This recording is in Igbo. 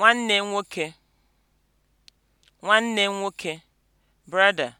nwanne nwoke nwanne nwoke (brother)